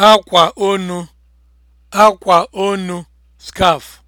akwa onu akwa onu scarf